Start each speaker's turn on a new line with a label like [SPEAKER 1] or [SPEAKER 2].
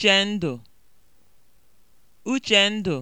[SPEAKER 1] Uchendụ Uchendụ